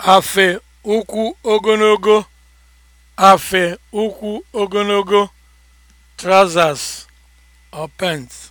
Afe ukwu ogologo afe ukwu ogologo (trousers or pants)